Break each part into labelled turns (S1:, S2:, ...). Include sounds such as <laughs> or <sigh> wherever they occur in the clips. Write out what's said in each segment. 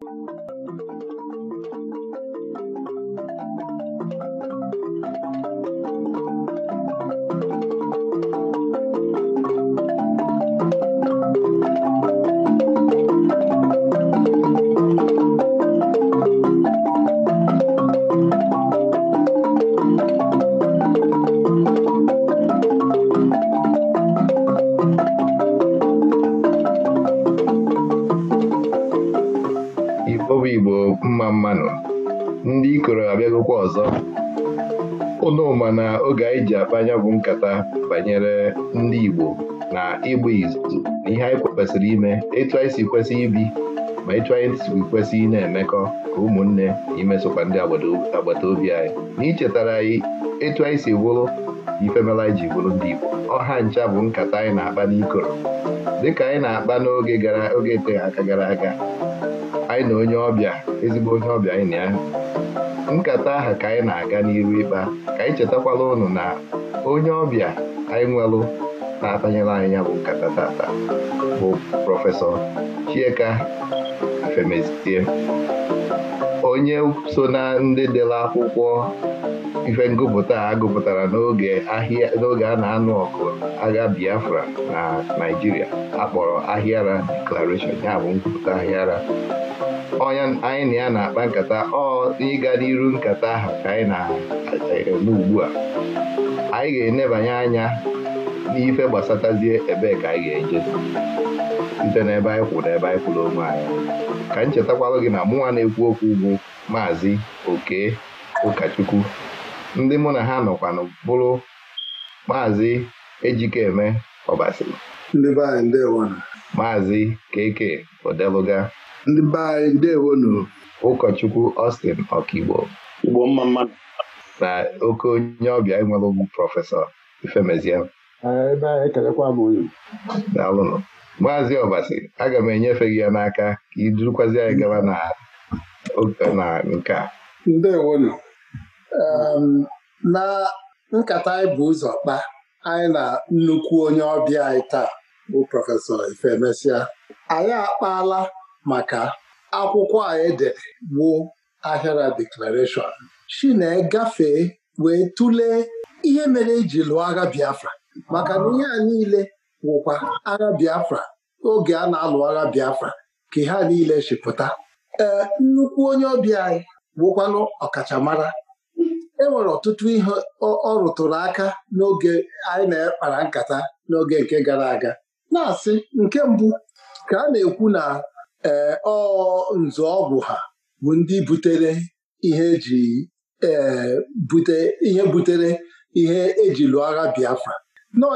S1: Thank you. kwesịrị ime etu anyị si kwesị ibi ma etu anyị si kwesị na-emekọ ka ụmụnne imesokwa ndị agbata obi anyị na ichetara anyị etu anyị si bụrụ ifemela anyị ji bụrụ ndị Igbo ọha ncha bụ nkata anyị na-akpa n'ikoro dịka anyị na-akpa n'oge gara oge eteghị aka gara aga anyị na onye ọbịa ezigbo onye ọbịa anyị na ya nkata aha ka anyị na-aga n'iru ịkpa ka anyị chetakwala ụnụ na onye ọbịa anyị nwelụ na-atanyere anyị bụ nkata tata bụ prọfesọ Chieka Afemezitie onye so na ndị dere akwụkwọ ife ngụpụta a gụpụtara n'oge ahịa n'oge a na-anụ ọkụ agha Biafra na Naịjirịa akpọrọ Ahịara Declaration ya bụ ngụpụta Ahịara onye anyị na ya na-akpa nkata ọ ịga n'iru nkata ahụ ka anyị na-eme ugbu a anyị ga-enebanye anya ife gbasatazie ebee ka anyị ga-eje site n'ebe anyị kwụrụ ebe anyị kwụrụ onwe anyị ka m chetakwalụ gị na mụnwa na-ekwu okwu ugwu maazị oke ụkọchukwu ndị mụ na ha nọkwanụ bụrụ maazị ejikeme ọbasi maazị keke odeluga ụkọchukwu Austin ọkaigbo na oke onye ọbịa enwere ugwu prọfesọ Ifemeziam ebe ekelekwa m unu daalụnụ maazị ọbasi aga m enyefe gị ya n'aka ka idurukwazi anyị gaba na nke a ndewonu
S2: na nkata anyị bụ ụzọ kpaa anyị na nnukwu onye ọbịa anyị taa bụ prọfesọ Ifemesia anyị akpaala maka akwụkwọ a edere bụ ahịara deklarashọn shi na-egafee wee tụlee ihe mere eji lụọ agha Biafra maka na ihe a niile wụkwa agha Biafra oge a na-alụ agha Biafra ka ha niile chịpụta ee nnukwu onye ọbịa anyị wụkwanụ ọkachamara e nwere ọtụtụ ihe ọ rụtụrụ aka n'oge anyị na-ekpara nkata n'oge nke gara aga na-asị nke mbụ ka a na-ekwu na ee nzu ọgwụ ha bụ ndị butere ihe eji e, bute ihe butere ihe eji lụọ agha Biafra nọọ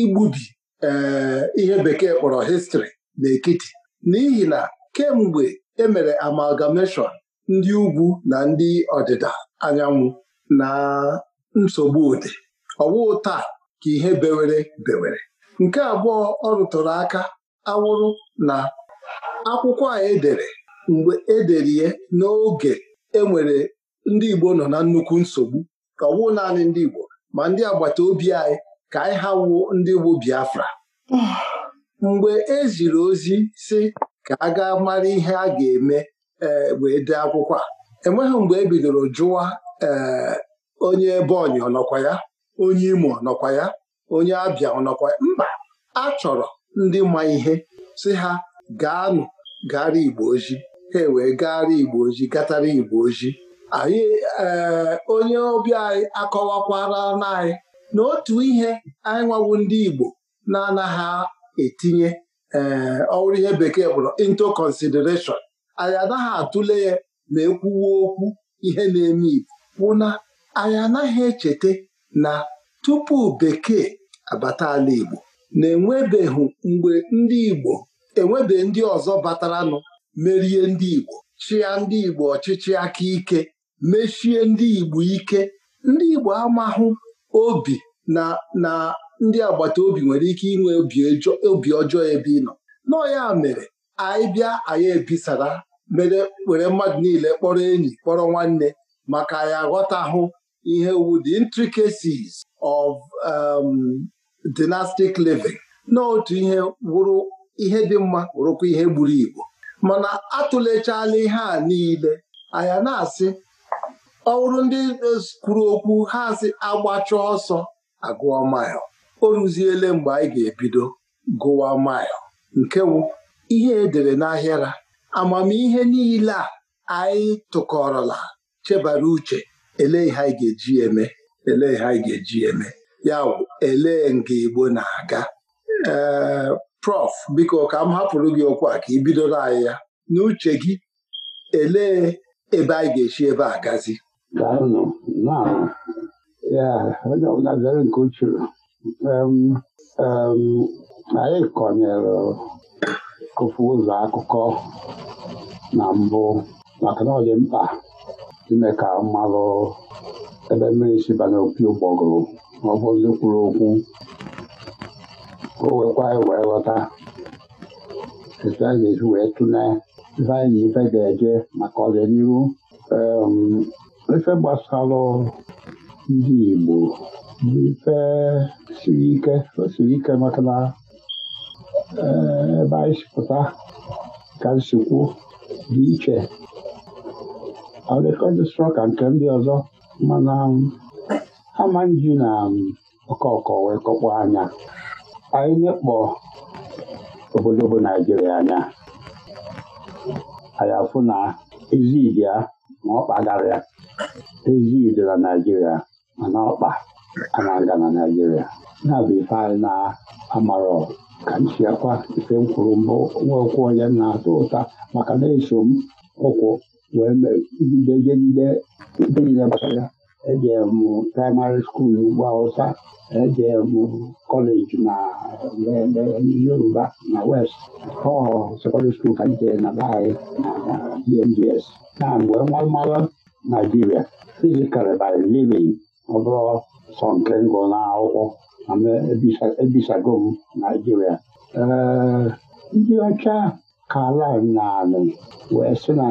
S2: igbubi ee eh, ihe bekee kpọrọ histri n'ekiti n'ihi na kemgbe emere amalgamation ndị ugwu na ndị ọdịda anyanwụ na nsogbu ode ọwụụ taa ka ihe bewere bewere nke abụọ ọ rụtụrụ aka awụrụ na akwụkwọ a edere mgbe edere ya n'oge enwere ndị Igbo nọ na nnukwu nsogbu ọwụ naanị ndị Igbo ma ndị agbata obi anyị ka anyị ha wuo ndị bụ Biafra mgbe e ziri ozi si ka a ga mara ihe a ga-eme e, wee dee akwụkwọ a enweghị mgbe e bidoro jụwa e, onye ebeonyi ọnọkwa ya onye Imo ọnọkwa ya onye Abịa ọnọkwa ya mba a chọrọ ndị ma ihe si ha gaanụ gara Igbo ojii ha e wee gara Igbo ojii gatara Igbo ojii anyị onye ọbịa anyị akọwakwara anyị. na otu ihe anyị nwawo ndị Igbo na-anaghị etinye ee eh, ihe bekee bụrụ into consideration anyị anaghị atụle ya ma ekwuwe okwu ihe na-eme Igbo bụ na anyị anaghị echeta na tupu bekee abata ala Igbo na-enwebeghị mgbe ndị Igbo enwebe ndị ọzọ bataranụ merie ndị Igbo chịa ndị Igbo ọchịchị aka ike mechie ndị Igbo ike ndị Igbo amahụ obi na na ndị agbata obi nwere ike inwe obi ọjọọ ebe ị nọ nọọ ya mere anyị bịa anyị ebisara mere were mmadụ niile kpọrọ enyi kpọrọ nwanne maka anyị ghọtahụ ihe wu the intricacies of um, dynastic living n'otu ihe wụrụ ihe dị mma wụrụkwa ihe gburu igbo mana atụlechala ihe a niile anyị na-asị ọ bụrụ ndị kwuru okwu ha asị agbachọ ọsọ agụọ mil o ruziele mgbe anyị ga-ebido gụwa mil nke wụ ihe edere n'ahịara amamihe niile a anyị tụkọrọla chebara uche elee ha anyị ga-eji eme elee ha anyị ga-eji eme ya wụ elee nga Igbo na-aga ee prof biko ka m hapụrụ gị okwu a ka ị bidoro anyị ya n'uche gị elee ebe anyị ga-esi ebe a gazi Dawno, no.
S3: Ja, no, na zielonym um, um, anyị kọnyere kụfu ụzọ akụkọ na mbụ maka na ọ dị mkpa ime ka mmalụ ebe mmiri sibanye opi ụgbọgụrụ ọ bụzi kwuru okwu o wekwa anyị wee ghọta esi wee tụlee ife na ga-eje maka ọdịnihu ife gbasara ndị Igbo bụ ife siri ike osiri ike maka na eh, ebe anyị sipụta ka nsikwu dị iche ọdịkọdịsọ ka nke ndị ọzọ mana um, ama na ọkọkọ um, wee kọkpọ anya anyị nyekpọ obodo bụ Naijiria anya anyị afụ na ezi ibia ma ọ kpagharịa. dị na naijiria mana ọkpa a na-aga na naijiria na-abụ ife anyị na-amarọ ka nchiakwa ife m kwuru mbụ nwa onye na-atọ ụta maka na-eso m ụkwụ wee jidejejide niile gbasara ya ejere m praịmarị skuulu ugwu awụsa ejere m kọleji na yoruba na west ọ sekọndịrị skuulu ka m na be na dmgs na mgbe nwa mara Naijiria iji by Living ọ bụrụ sọ nke m na n'akwụkwọ mana ebisago m Naijiria. Ee, ndị ọcha Caribbean na anị wee sị na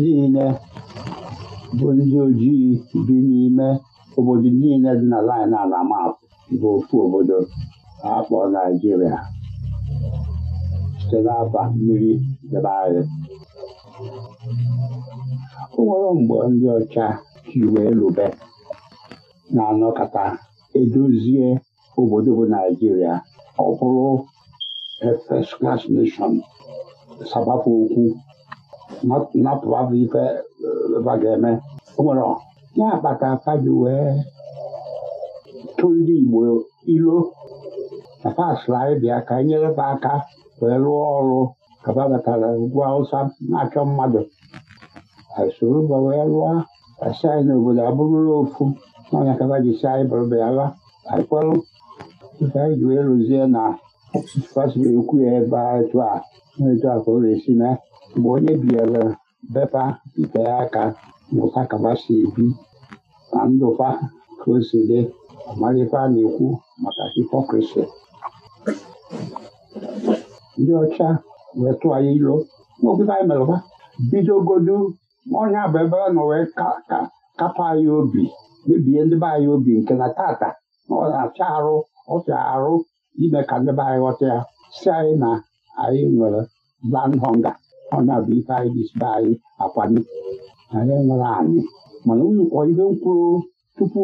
S3: niile bụ ndị ojii bi n'ime obodo niile dị na lin a na bụ ofu obodo akpọ Naijiria site n'afa mmiri debe anyị. O nwere mgbe ndị ọcha ji wee na-anọkata edozie obodo bụ Naijiria ọ bụrụ first class nation sabapụ okwu bụ ife eh, ga-eme o nwere ya akpata faji wee tụ ndị Igbo ilo na pasla ịbịa ka nyere aka wee rụọ ọrụ ka ha batara ugwu awụsa na-achọ mmadụ soro gbawe rụọ asai na obodo abụrụla ofu n'ọnya kaba ji si anyị bụrụbala kpọrụ ife anyị ji wee rụzie na ekwu ya ebe etu a etu a ka ọ ga-esi na mgbe onye biere bepa ite ya aka mụta kaba si ebi na ndụfa ka o si dị amalife na-ekwu maka hipokrisi ndị ọcha metụa ya ilo maobodo anyị merụba bidogodu ọnya bụ ebe a nọ wee kapụ anyị obi mebie ndị be anyị obi nke na tata na ọ acha arụ ọfịa arụ ime ka ndị be anyị ghọta ya si anyị na anyị nwere land honga ọnya bụ ife anyị jisibe anyị akwani anyị nwere anyị mana unu kpọọ ihe tupu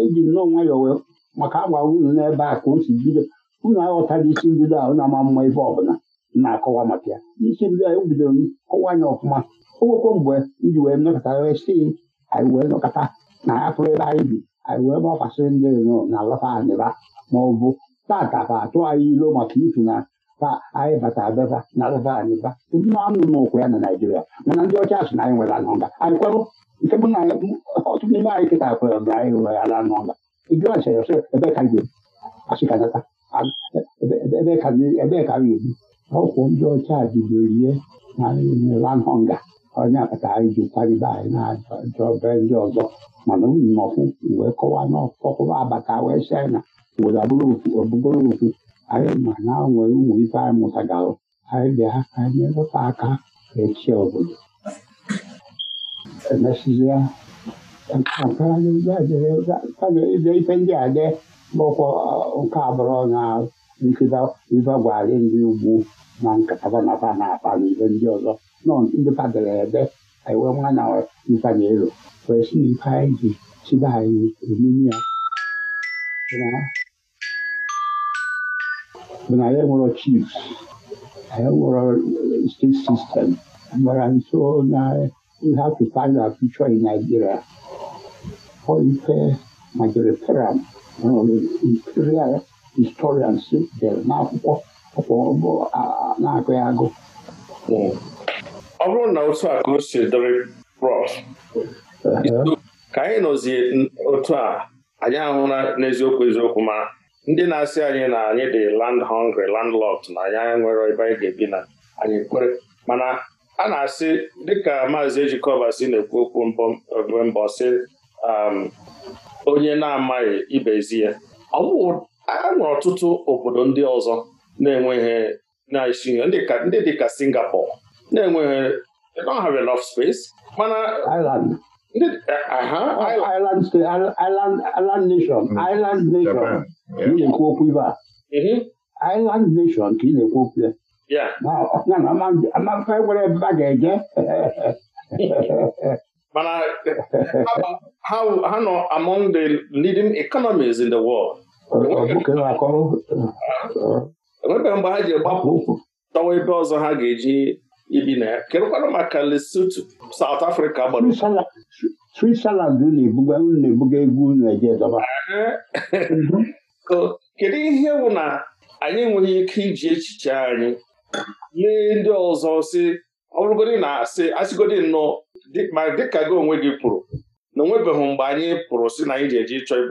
S3: eji e, e, nnọọ nwayọọ wee maka agwa unu n'ebe a ka o si bido unu aghọtara isi mbido ahụ na ama mma ebe ọbụla na-akọwa maka ya isi bido anyị bidoro kọwa anya ọfụma o nwekwa mgbe iji wee nọkọta si anyị wee nọkọta na afụrụ ebe anyị bi anyị wee gbafasịrị ndị ezinụlọ na alafa anịba ma ọ bụ tata ka atụ anyị ilo maka ifi na ka anyị bata abeba na alafa anịba anụ n'ụkwụ ya na Naịjirịa mana ndị ọcha sị na anyị nwere ala anyị kwerụ nke bụ na ọtụtụ n'ime anyị kịta kwere na anyị nwere ala nga ịjụ asịrị ebe ka ebe ka ebi ọkwụ ndị ọcha bidoro ihe nalanhọnga onye akpata anyị ji kwalibe anyị na ajọbe ndị ọzọ mana unu nọkwụ wee kọwa n'ọkọkọwa abata wee china obodo ọbụbụrụ ofu anyị ma na nwere ụmụ ife anyị mụtagalụ anyị bịa ka anyị nyelụta aka echi obodo emesizie ife ndị a dị bụkwa nke abụrụ ọnya nke gwara ndị ugwu na nkata na fa na-akpa ndị ọzọ nọ ndị fadere ebe ewe nwanya ifanye elu wee si na ife anyị ji chiba anyị emiri ya bụ na ya chiefs ya nwere state system gbara nso na ihe in imperial historians dere n'akwụkwọ ọkpọbụ na-agụ ya agụ
S4: ọ bụrụ na otu a ka o si dịrị prọf ka anyị nọzi otu a anyị ahụla n'eziokwu eziokwu ma ndị na-asị anyị na anyị dị land hungry landlocked na anyị nwere ebe anyị ga-ebi na anyị kwere mana a na-asị dịka maazị ejikọba si na-ekwu okwu mbọ mbọ sị um, onye na-amaghị ibezi ya ọ a nwere ọtụtụ obodo ndị ọzọ na-enweghị na-esi ndị dịka Singapore na-enweghị they don't have enough space mana Island nation eh,
S3: oh, Island nation hmm. mm-hmm. Island nation ka ị na-ekwu okwu ya amaka e nwere ebe a ga-eje <laughs>
S4: mana ha eh, nọ among the leading economies in the world na enwebeghị mgbe ha ji gbapụ ụkwụ tọwa ebe ọzọ ha ga-eji ibi na ya kedụkwanụ maka Lesotho South Africa gbara
S3: Switzerland na-ebuga egwu Naijiria
S4: kedu ihe bụ na anyị enweghị ike iji echiche anyị lee ndị ọzọ si ọ bụrụgodị na asị asịgodi nnọọ ma dịka gị onwe gị kwuru na onwebeghị mgbe anyị pụrụ si na anyị ji eji chọọ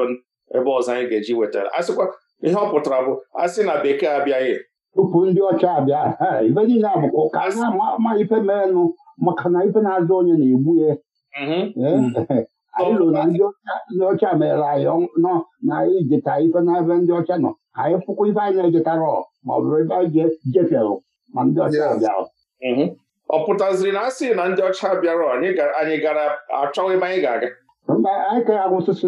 S4: ebe ọzọ anyị ga-eji wetara asịkwa ihe ọ pụtara bụ asị na bekee abịaghị
S3: tupu ndị ọcha abịa ibe niile abụkwa ka na-ama ma ife merenụ maka na ife na-azụ onye na-egbu ya
S4: mhm. mm. <laughs>
S3: anyị lụrụ na ndị ọcha mere anyị nọ na anyị jeta ife na n'ebe ndị ọcha nọ anyị fụkwa ife anyị na-ejetara ma ọ bụrụ ebe anyị jefere ma ndị ọcha abịara
S4: mhm. ọ pụtaziri na asị na ndị ọcha bịara anyị gara achọghị ebe anyị ga-aga
S3: mba anyị ka agwụsụsụ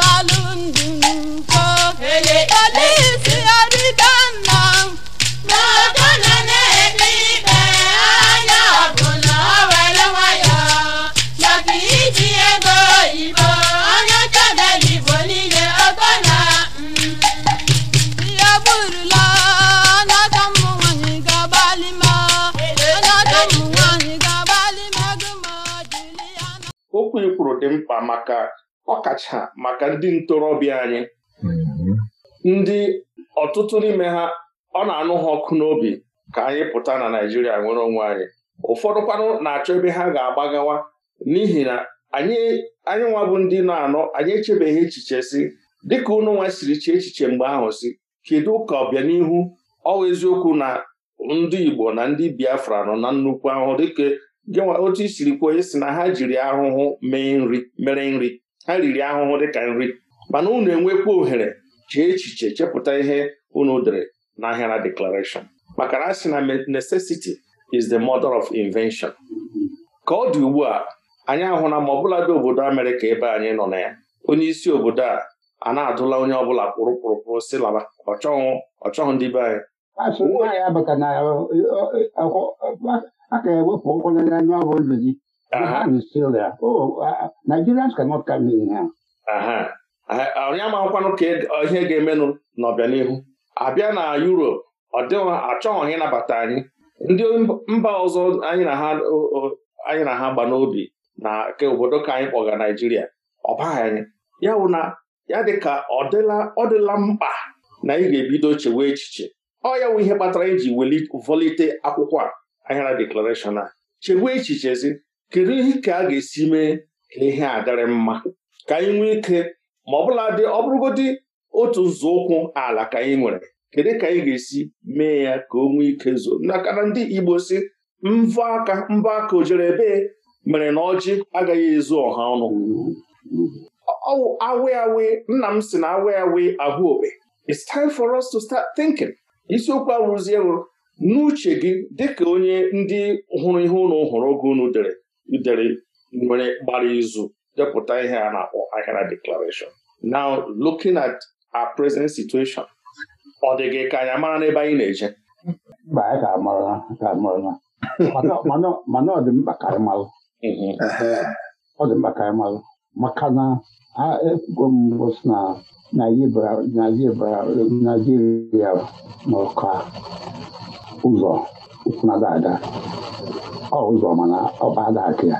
S4: dị mkpa maka ọkacha maka ndị ntorobịa anyị mhm. ndị ọtụtụ n'ime ha ọ na-anụ ha ọkụ n'obi ka anyị pụta na naijiria nwere onwe anyị ụfọdụkwanụ na-achọ ebe ha ga-agbagawa n'ihi na anyị anyị nwa bụ ndị na-anọ anyị echebeghị echiche si dịka unu nwa siri chee echiche mgbe ahụ si kedu ka ọbịanihu ọwa eziokwu na ndị Igbo na ndị Biafra nọ na nnukwu ahụ. dịka gịnwa otu i siri kwuo onye si na ha jiri ahụhụ nri mere nri ha riri ahụhụ dịka nri mana unu enwekwa ohere chee echiche chepụta ihe unu dere n'ahịa na deklaration maka na a na necessity is the mother of invention ka ọ dị ugbu a anyị na ma ọbụla dị obodo Amerịka ebe anyị nọ na ya onye isi obodo a a na-adụla onye ọbụla kpụrụ kpụrụkpụrụ si laba ọchọghụ ọchọghụ ndị be anyị
S3: a ga-ewepụ na-anya ọrụ ndụ gị Nigerians cannot come in
S4: here. onye amakwanụ ka e, ihe ga-emenụ n'ọbịanihu abịa na Europe ọ dịghị achọghị ịnabata anyị ndị mba ọzọ anyị na ha gba n'obi na ke obodo ka anyị kpọga Naijiria ọ baghị anyị ya wụ na ya ka ọ dịla mkpa na ị ga-ebido chewe echiche ọ ya wụ ihe kpatara iji e volite akwụkwọ a Ahịara Declaration a chegbuo echichezi kedu ihe ka a ga-esi mee ka ihe a dịrị mma ka anyị nwee ike ma ọ bụla dị ọ bụrụgodị otu nzọụkwụ ala ka anyị nwere kedu ka anyị ga-esi mee ya ka o nwee ike zoo nakana ndị Igbo si mbọ aka mbọ aka ojere ebee mere na ọjị agaghị ezu ọha ọnụ awe nna m si na awe awe ahụ okpe it's time for us to start thinking isiokwu awụrụzie wụrụ n'uche gị dịka onye ndị hụrụ ihe ụlọ hụrụ oge unu dere dere nwere gbara izu depụta ihe a na-akpọ Ahịara Declaration now looking at our present situation ọ dị gị ka anyị mara n'ebe anyị na-eje
S3: mana ọ dị mkpa karị anyị malụ mhm. ọ dị mkpa karị anyị malụ maka na ekwugo mbụ si na Naijiria nọ ka ụzọ ụfụnada ada ọ ụzọ mana ọba ada akụ ya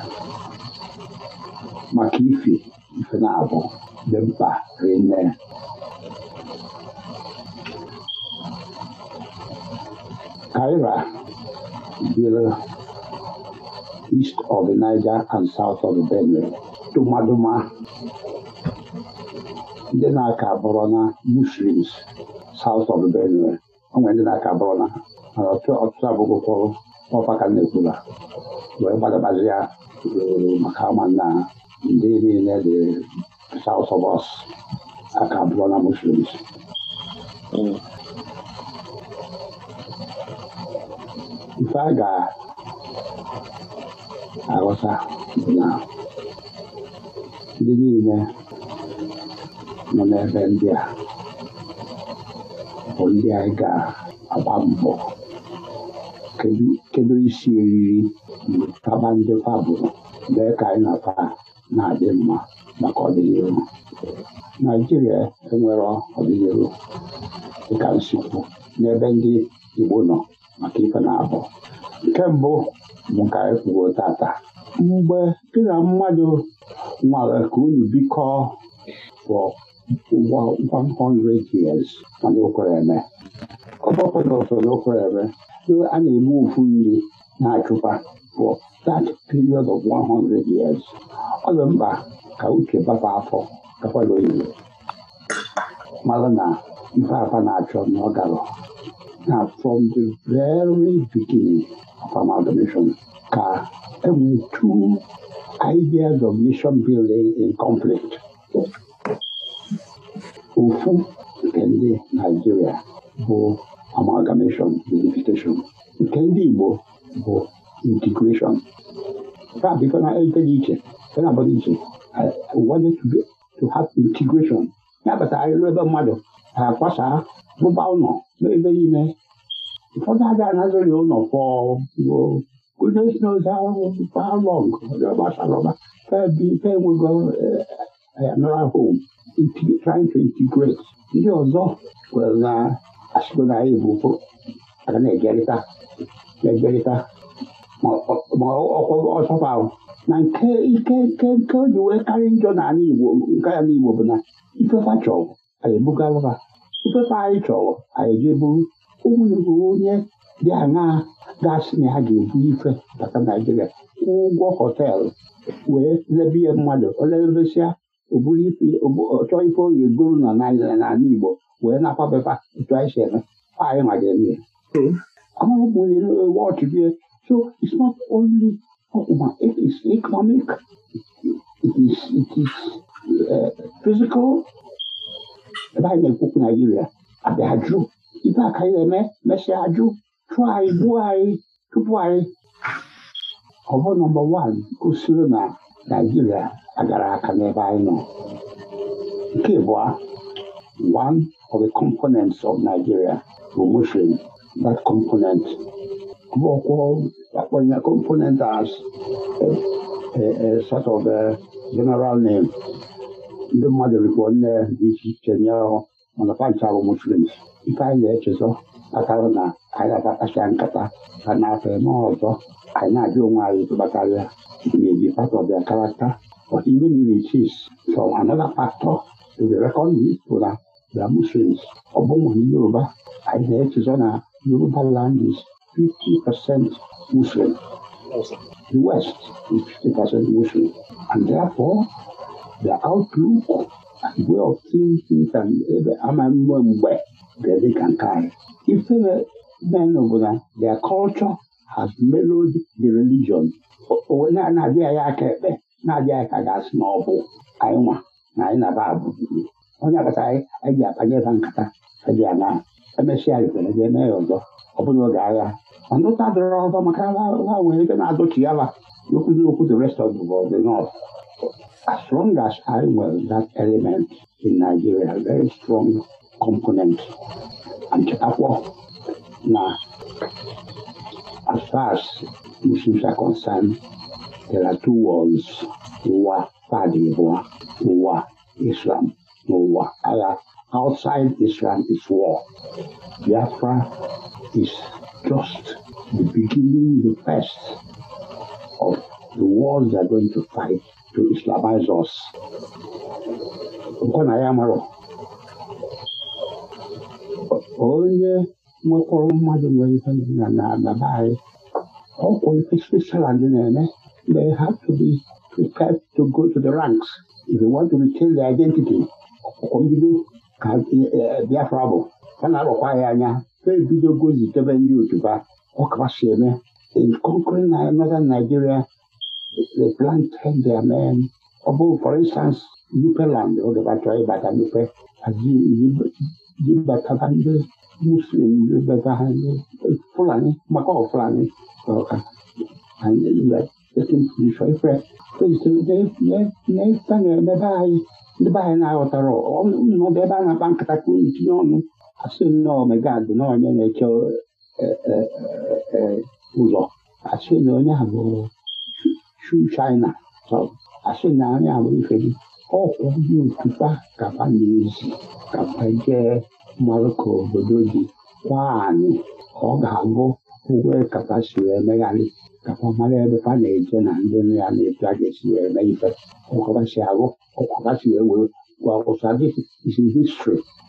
S3: maka ife ife na-abụ dị mkpa rinne Kaira biri east of the Niger and south of the Benue dụmadụma ndị na-aka bụrụ na Muslims south of the Benue o nwere ndị na-aka bụrụ na ọtụtụ abụghị ụfọdụ ọfa ka na-ekwula wee gbadabazi maka ọma na ndị niile dị south of us aka bụrụ muslims ife a ga-aghọta na ndị niile nọ n'ebe ndị a bụ ndị anyị ga-agba mbọ
S2: kedu isi eriri
S3: taba ndị pabụ mee ka anyị na na-adị mma maka ọdịnihu naijiria enwere ọdịnihu dịka nsikwu n'ebe ndị igbo nọ maka ife na-abụ nke mbụ bụ ka anyị kwuo tata mgbe gị na mmadụ nwara ka unu bikọọ 100 years mana okwereme ọbọpụta ofere okwereme a na-eme ufu nri na-achụkwa for that period of 100 years ọ dị mkpa ka uche bapa afọ gakwala oyibo mara na ife afa na-achọ na na from the very beginning of amalgamation ka enwee two ideas of nation building in conflict ofu nke ndị Naijiria bụ amalgamation unification nke ndị Igbo bụ integration a bịkana ejeghị iche ena abata iche wanted to have integration ya batara ịlụ ebe mmadụ na-akwasa rụba ụlọ n'ebe niile ụfọdụ aga anazụghị ụlọ fọruo goodness knows how long gbasara ọba fe enwego Diana home trying to integrate ndị ọzọ kwere na asịgo na anyị bụ aga na-egerịta na-egerịta ma ọchọpa ahụ na nke ike nke nke o ji wee karị njọ n'ala Igbo nke ya n'Igbo bụ na ifefa chọrọ anyị ebugalụ ha ifefa anyị chọrọ anyị jee buru ụmụnugwu onye dị aṅaa gasị na ha ga-ebu ife bata Naijiria ụgwọ họteelụ wee lebie mmadụ olelebesịa ọ bụghị chọọ ife oge goro na n'ala Igbo wee na-akwabepa etu anyị si eme anyị ma ga-eme ya watch there. So is not only ma it is economic, it is it is uh, physical. Ebe anyị na-ekwukwu Naijiria abịa ajụ ibe aka anyị na-eme mesịa ajụ chụọ anyị gbuo anyị tupu anyị ọ bụ nọmba wan gosiri na Naijiria agara aka n'ebe anyị nọ nke abụọ one of the components of Nigeria bụ Muslim that component akpọnye component as a, eh, a eh, eh, sort of a general name ndị mmadụ rikpo nne dị iche iche nye bụ Muslims ife anyị na-echezọ akara na anyị na-akpacha nkata ka na-afọ eme ọzọ anyị na-ajụ onwe anyị ịtụbakarịa maybe part of their character but even if it is from another factor to be reckoned with na the Muslims ọ bụghị ndị Yoruba anyị na-echezọ na Yoruba land is 50% Muslim the West is 50% Muslim and therefore the outlook and way of thinking and ebe ama mgbe ga-adị ka nke anyị ifere na uh, their culture has mellowed the religion. na-adịghị ya aka ekpe na-adịghị ka ga na ọ bụ anyị nwa na anyị na-aba abụ onye agbata anyị anyị ji akpanye ebe nkata eji ana emesịa riterede e eme ya ọzọ ọ bụla oge agha mana ụta dịrọ ọzọ maka ha nwere ebe na-adọchi ya ba n'okwu okwu the rest of the world the north as strong as I nwere that element in Nigeria very strong component and na as far as Muslims are concerned, there are two worlds, ụwa fadị abụọ ụwa Islam na ụwa outside Islam is war. Biafra is just the beginning, the first of the wars they are going to fight to Islamize us. Onye nwekọrọ mmadụ nwere ihe na na be anyị ọkwụ ife Switzerland na-eme they have to be prepared to go to the ranks if they want to retain their identity ọkwụkwọ mbido ka Biafra bụ a na-arọkwa ya anya ha ebidogo zitebe ndị otuba ọ si eme in conquering northern Nigeria they planted their men ọ bụ for instance Nupeland oge oh, batara ịbata Nupe aji bataba ndị muslimbe vähän fulani, makaa fulani joka hänelle. Ja sitten se oli fre. Ne, ne, na tänne, ne vähän, ne vähän nämä otaro. No, ne vähän nämä pankata kuin nyt on. Asun no, shu, china. So, asun no, ne, avo, kapa, kapa, je, Morocco obodo dị kwa anyị ọ ga-abụ ụgbọ Qatar si wee megharị ka mara ebe ha na-eje na ndị nọ ya na-ebu ga esi wee mee ife, ọkwa si arụ, ọkwa ha si wee were gwa ụsa this is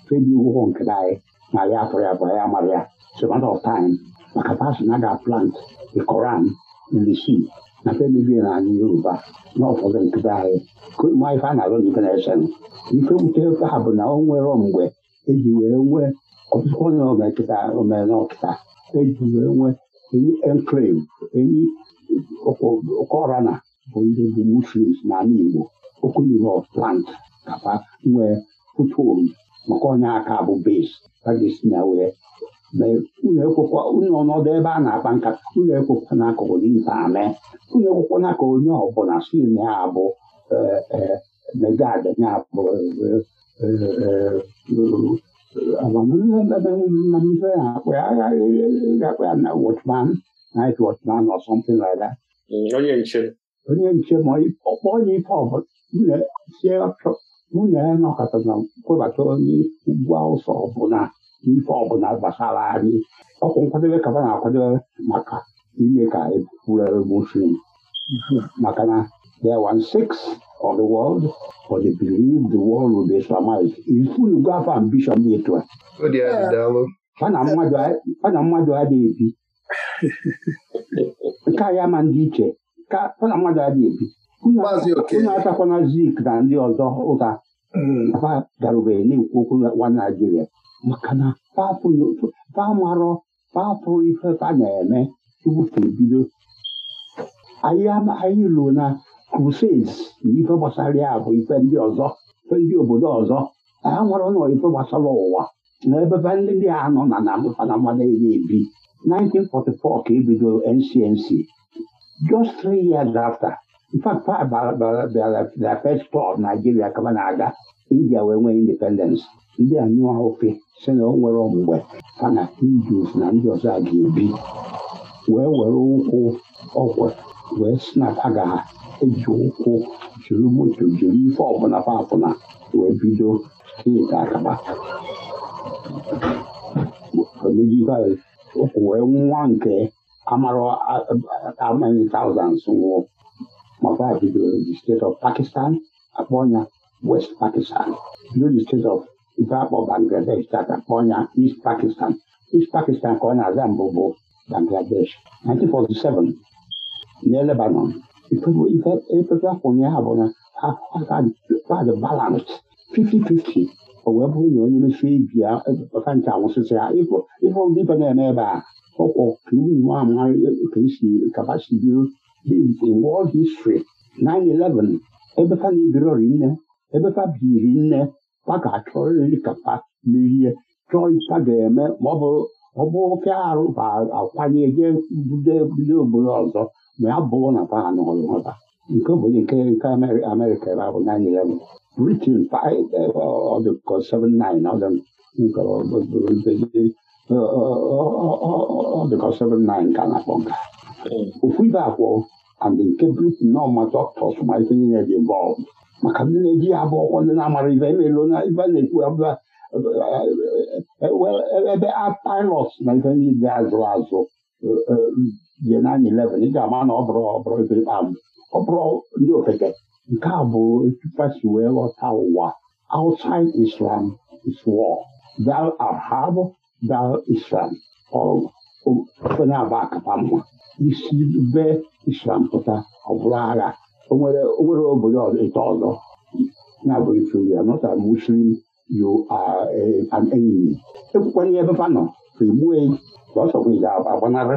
S3: febi ụgwọ nke anyị na ya atọrọ ya bụ ya mara ya it's a maka pasi na aga plant ikoran Koran in na febibi na anyị Yoruba na ụfọdụ nkịta anyị ma ife a na-alụ ife na-esen ife wute ha bụ na o nwere mgbe eji wee nwee onye ọmekịta omenọkịta eji wee nwee enyi enclave enyi na bụ ndị bụ muslims n'ala Igbo okunuru of plant kapa nwee foothold maka onye aka bụ base na wee unu ekwekwa ọnọdụ ebe a na-akpa nkata n'akụkụ ame onye ọbụla si na ya bụ megad amamihe amamihe na-akpa ya aghaghị ga-akpa ya na watchman night watchman or onye nche onye nche ma ọkpọ onye na ọbụla na kwebata onye ugwu awụsa ọbụla ife ọbụla gbasara anyị ọkwụ nkwadebe na ka maka of the world for they believe the world will be Islamized. If you go after ambition dị etu a na mmadụ adịghị ebi nke a ya ma ndị iche na mmadụ adịghị
S5: ebi unu atakwana
S3: zik na ndị ọzọ ụka fa darubeghị na-ekwu okwu nwa Naijiria maka na fa marọ fapụrụ ife ka na-eme tupu bido anyị ruo na crusades na ife gbasara ya bụ ife ndị ọzọ ife ndị obodo ọzọ ha nwere ụlọ ife gbasara ụwa na ebebe ndị dị anọ na na mfanama ebi ebi 1944 ka ebido NCNC just three years after fact bịara first tour Nigeria kama na-aga India wee nwee independence ndị a nyụọ ofe si na o nwere mgbe na Hindus na ndị ọzọ a ga-ebi wee were ụkwụ ọgwụ wee si na ha eji ụkwụ jiri moto jiri ife ọbụla papụna wee bido steeti akaba ụkwụ wee nwa nke amara amanyị thousands nwụọ maka bido the state of Pakistan akpọ ya West Pakistan bido the state of ife akpọ Bangladesh taka akpọ ya East Pakistan East Pakistan ka ọ na-aza mbụ bụ Bangladesh 1947 near Lebanon. If, if, if Africa abụna ha the balance 50 o wee bụrụ na onye mesie ibi ya ebeaa anwụsịsị ya ịbụ ndị ibe na-eme ebe a ọkwọ kabasi biro world history 9-11 ebefa na ebiro rinne ebefa biri nne pa ga-achọrịrị kapa merie chọọ ipa ga-eme ma ọ bụrụ ofe arụ akwanye jee budo obodo ọzọ ma ya bụrụ na kwa ha nọrụ ha nke obodo nke nke amerịka ebe abụ nine eleven britain ọdụkọ 79 ọdụkọ 79 ka na-akpọ nka ofu ibe akwụ and nke britain na ọma dọktọs ma ife niile dị maka ndị na-eji ya bụ ọkwọ ndị na-amara ibe na ibe na-ekwu ebe a pilot na ife azụ azụ jie na 11 ị ga-ama na ọ e bụrụ ọbụrụ ndị ofeke nke a bụ etupa wee ghọta ụwa outside islam is war thou art thou islam ofe na-aba akapa mma isi be islam pụta ọ bụrụ agha onwere obodo ịta ọzọ na-abụ ife muslim e, an ebe e ga-agbanarị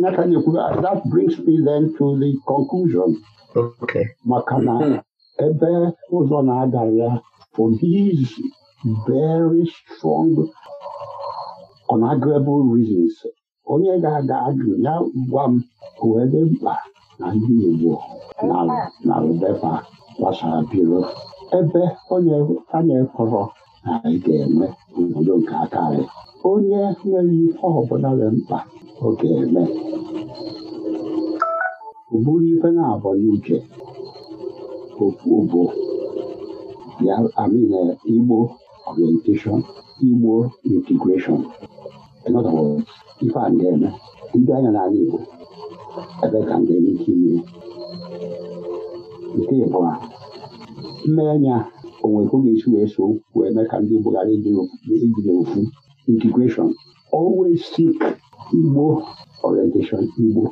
S3: Nathan ekwuru that brings me then to the conclusion maka na hmm. ebe ụzọ na-aga ya for these very strong unarguable reasons onye ga-aga ajụ ya gwa m ebe mkpa na ndị Igbo na Rebeka gbasara biro ebe onye a na-ekọrọ anyị ga-eme obodo nke aka anyị onye nwere ife ọbụla dị mkpa ọ ga-eme ụbụrụ ife na-abọ n'uche bụ ya amin igbo orientation igbo integration ife a ga-eme ndị anya n'ala igbo ebe ka ndị ike ime nke ịbụa mmenya o nwere oge esi wee so wee mee ka ndị Buhari ijiri ofu integration always seek Igbo orientation Igbo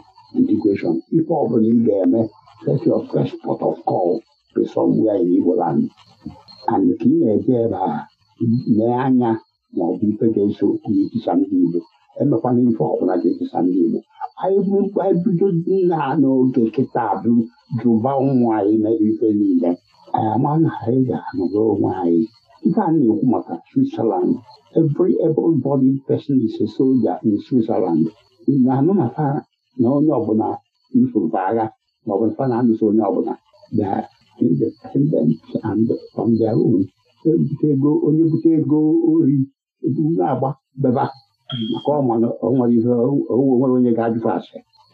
S3: integration ife ọbụla ị ga-eme set your first port of call to somewhere in Igbo land and ka ị na-eje ebe a mee anya ma ọ bụ ife ga-eso n'etisa ndị Igbo emekwana ife ọbụla ga-etisa ndị Igbo anyị bido nna n'oge kịta bụ jụba ụmụ anyị mere ife e e niile anyị amaghị ha anyị ga-anọrọ onwe anyị ihe a na-ekwu maka Switzerland every everybody person is a soldier in Switzerland na-anụ na fa na onye ọbụla ifụrụ agha ma ọ bụ fa na-anụso onye ọbụla independent and on their own ego onye bute ego ori na-agba beba maka ọ nwere ihe onwere onye ga-ajụfụ ase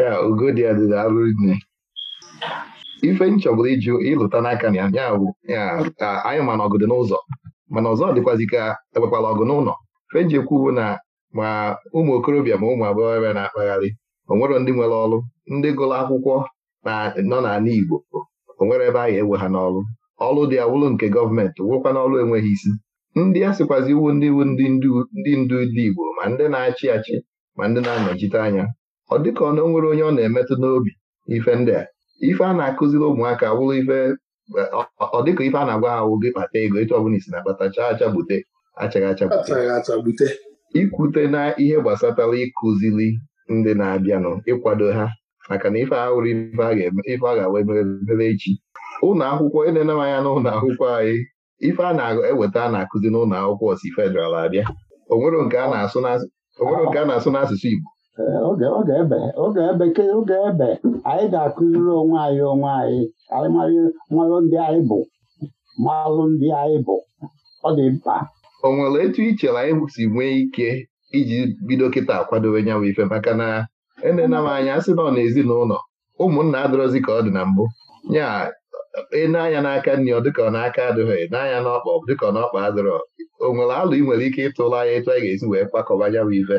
S1: ya ugo dị adịda arụ nne ife m chọbụla ịlụta n'aka na ya bụ anyị mana ọgụ dị n'ụzọ mana ọzọ dịkwazi ka ekpekwala ọgụ n'ụlọ fenji ekwu bụ na ma ụmụ okorobịa ma ụmụ agbọghọbịa na-akpagharị onwere ndị nwere ọrụ ndị gụrụ akwụkwọ nọ n'ala Igbo onwere ebe a anyị ewe ha n'ọrụ ọrụ dị awụlụ nke gọọmenti wụkwa n'ọrụ enweghị isi ndị a sịkwazi iwu ndị iwu ndị ndu ndị ndu ndị Igbo ma ndị na-achị achị ma ndị na-anọchite anya ọ dịka ọ nwere onye ọ na-emetụ n'obi ife ndị a ife a na-akụziri ụmụaka bụrụ ife ọ dịka ife a na-agwa ha wụ gị kpata ego etu ọbụla isi na-akpata chaa achagbute achaghị achagbute ikwute na ihe gbasatara ịkụziri ndị na-abịanụ ịkwado ha maka na ife ahụrụ ife a ga-awa emere echi ụlọ akwụkwọ na m anya n'ụlọ akwụkwọ anyị ife a na-eweta a na-akụzi n'ụlọ akwụkwọ osi abịa nke a na-asụ n'asụsụ Igbo oge
S3: ebe oge ebe anyị ga-akụziri onwe anyị onwe anyị anyị marụ ndị anyị bụ
S1: marụ ndị anyị bụ ọ dị mkpa o nwere etu ichere anyị si nwee ike iji bido kịta akwadobe nyanwụ ife maka na enena m anya sị na ọ na ezinụlọ ụmụnna adịrọzi ka ọ dị na mbụ ya e na-anya n'aka nri ọ dịka ọ n'aka adịghị e n'anya n'ọkpa dịka ọ n'ọkpa adịrọ o nwere alụ ị nwere ike ịtụrụ anya etu anyị ga-esi wee kwakọba nyanwụ ife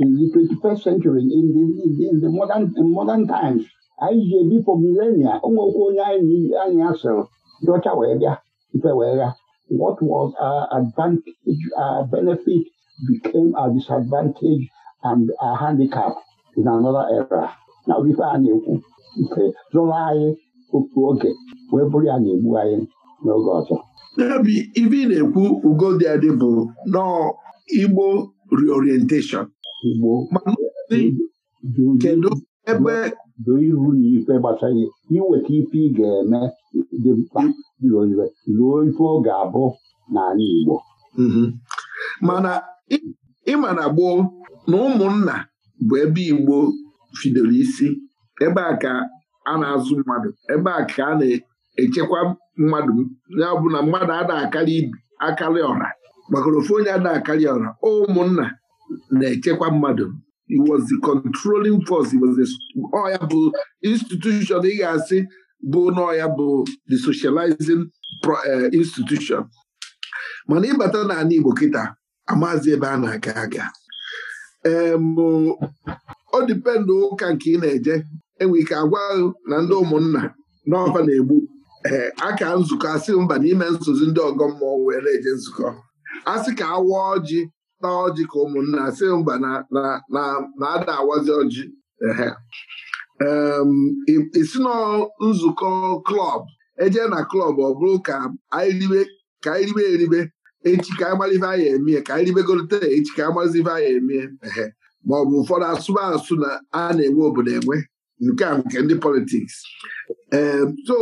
S3: in the 21st century in the, modern, times anyị ji ebi for millennia ụmụokwu onye anyị asịrị ndị ọcha wee bịa ife wee gha what was our advantage our benefit became her disadvantage and her handicap in another era na ife a na-ekwu ife zụrụ anyị otu oge wee bụrụ ya na-egbu anyị n'oge ọzọ
S5: n'obi ife ị na-ekwu ugo dị adị bụ Igbo reorientation kedu ebe doo ihu na ikpe
S3: gbasara iweta ife ị ga-eme dị mkpa ruo ife ọ ga-abụ
S5: n'ala Igbo mhm. mana ịma na gboo na ụmụnna bụ ebe Igbo fidoro isi ebe a ka a na-azụ mmadụ ebe a ka a na-echekwa mmadụ ya bụ na mmadụ ada akarị ọra maka ofu onye ada akarị ọra ụmụnna na-echekwa mmadụ was the controlling force was bụ institution ị ga-asị bụ n'ọya bụ the socializing eh, institution mana ịbata n'ala Igbo kịta amazi ebe a na-aga aga ọ dịpendụ ụka nke ị na-eje enwe ike agwa na ndị ụmụnna n'ọfa na-egbu ee eh, aka nzukọ asị mba n'ime nsozi ndị ọgọ mmụọ were nzukọ asị ka awa ọjị na ọjị ka ụmụnna si mba na-ada awazi ọjị isi na nzukọ klọb eje na klọb ọ bụrụ ka anyị ribe eribe echi ka anyị malive emie ka anyị ribegolite echi ka anyị malizive anyị emie ma ọ bụ ụfọdụ asụba asụ na a na-enwe obodo enwe nke a nke ndị politiks so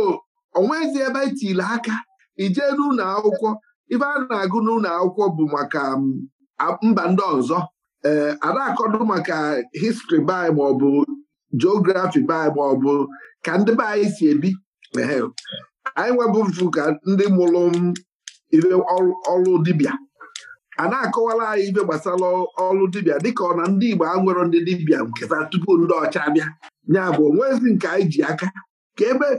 S5: onwezi ebe etile aka ijee n'ụlọ akwụkwọ ibe a na-agụ n'ụlọ akwụkwọ bụ maka mba ndị ọzọ ee eh, ana-akọdụ maka histri bai maọbụ geografi bai maọbụ ka ndị be anyị si ebi anyị nwebụfu ka ndị mụrụ ibe ọrụ dibịa a na-akọwara anyị ibe gbasara ọrụ dibịa dịka ọ na ndị Igbo a nwere ndị dibịa nke tupu ndị ọcha bịa onwezi nke anyị ji aka ka ebe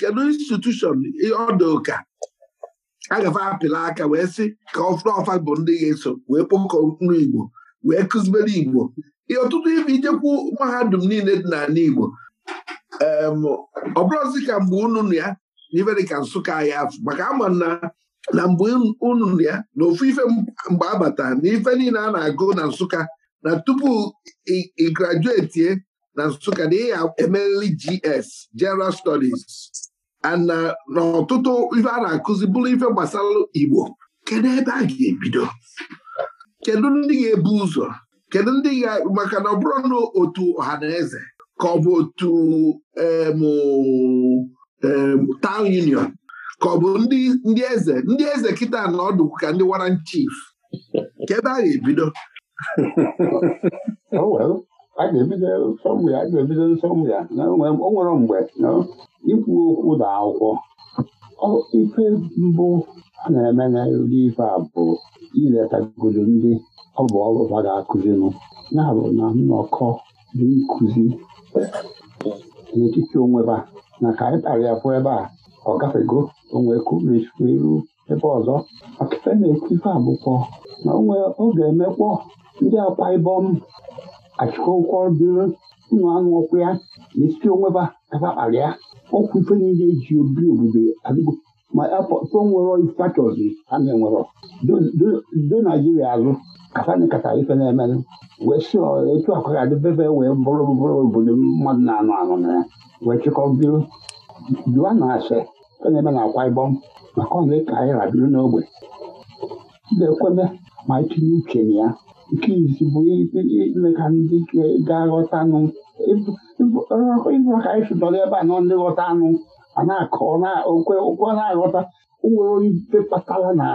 S5: kedu institushọn ọdụ a gafe apịla aka wee sị ka ọfụrụ ọfa bụ ndị ga-eso wee kpọkọ nri Igbo wee kụzibere Igbo ihe ọtụtụ ibi ijekwu mahadum niile dị n'ala Igbo ọ bụrụzi ka mgbe unu ya na Nsụka ya afụ maka ama na na mgbe unu ya na ofu ife mgbe abata na ife niile a na-agụ na Nsụka na tupu ị grajuetie na Nsụka na ị ya GS General Studies ana uh, n'ọtụtụ ife a na-akụzi bụrụ ife gbasara Igbo kedu ebe a ga-ebido kedu ndị ga-ebu ụzọ kedu ndị ga maka na ọ bụrụ na otu ọha na eze ka ọ bụ otu town union ka ọ bụ ndị eze ndị eze kịta na ọdụ ka ndị waran chief ka ebe a ga-ebido <laughs> oh, a ga-ebido sọmụ ya a ga-ebido nsọmụ ya
S3: na o nwere mgbe na ikwu okwu na akwụkwọ ife mbụ a na-eme na ife a bụ iletagodo ndị ọ bụ ọrụ ha ga-akụzinụ na-abụ na nnọkọ dị nkụzi n'etiti onweba na ka anyị kpara ya pụọ ebe a ọ gafego onwe kumechukwu iru ebe ọzọ maka na-ekwu ife abụkwọ na onwe ọ ga-emekpọ ndị akwa ibom achịkọkwa obere ụmụ anụ ọkụ ya na-esite onweba kapa kpara ya ọkwụ ife niile eji obi obodo adịgo ma afọ nwere factors a na-enwere do naijiria azụ kasana kata ife na-emelụ wee si etu akwa ga bebe wee bụrụ bụrụ obodo mmadụ na-anụ anụ na ya wee chịkọ biro jụa na ase ife na-eme na akwa ịbọm maka na ka anyị rabiri n'ogbe na-ekweme ma itinye uche na ya nke izi bụ ime ka ndị ga-aghọta anụ ịbụrụ ka anyị sụdọrọ ebe a nọ ndị ghọta anụ a na-akọ okwe na-aghọta nwere onye ife kpatara na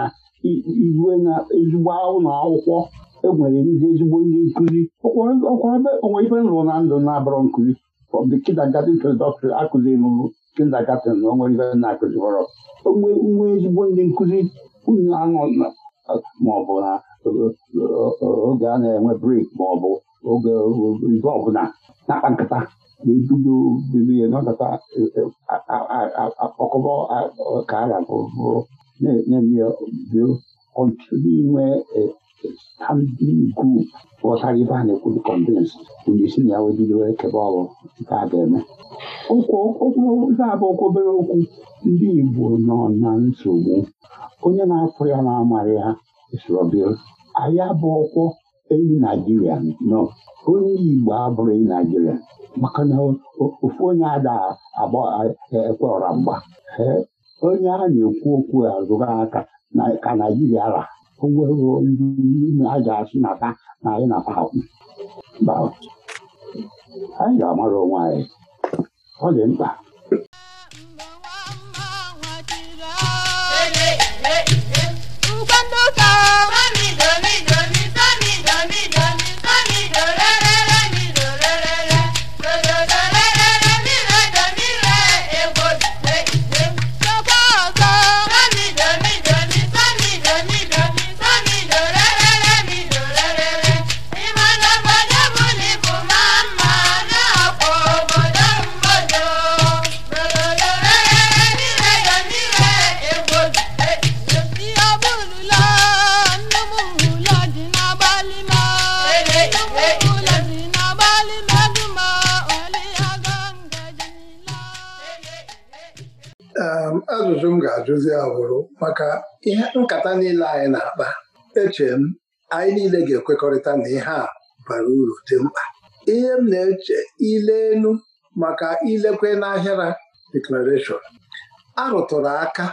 S3: oh, iwe na ezigbo ụlọ akwụkwọ enwere ndị ezigbo ndị nkụzi onwe ife nrụ na ndụ na abụrọ nkụzi from the kindergarten to the doctor akụziri m kindergarten oh, oh, na onwe ife na-akụzi nwe ezigbo ndị nkụzi unu anọ maọbụ na oge a na-enwe brik ma ọ bụ oge ife ọbụla na-akpa nkata na-ebudo bibi nọkọta akpọkọbọ ka ara bụrụ na-emebio until inwe standing group ghọtara ibe a na-ekwuru convince onye isi na ya wee bido ekebe ọrụ nke a ga-eme okwu abụ okwu obere okwu ndị Igbo nọ na nsogbu onye na-afụ ya na amarị ya anya bụ ọkwọ enyi naijiria nọ onye igbo abụrụ enyi naijiria maka na ofu onye ada e, ekwe ọra mgba onye a na-ekwu okwu azụrụ aka ka naijiria ra onwere ndị a ga-asị na ta na anyị na anyị ga-amara onwe anyị ọ dị mkpa
S6: ka
S2: ajụzi ya maka ihe nkata niile anyị na-akpa eche m anyị niile ga-ekwekọrịta na ihe a bara uru dị mkpa ihe m na-eche ile elu maka ilekwe n'ahịara deklarashọn a rụtụrụ aka